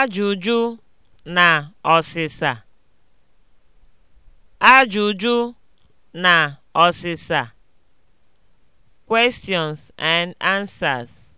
Ajụjụ na ọsịsa Ajụjụ na ọsịsa (Questions and answers)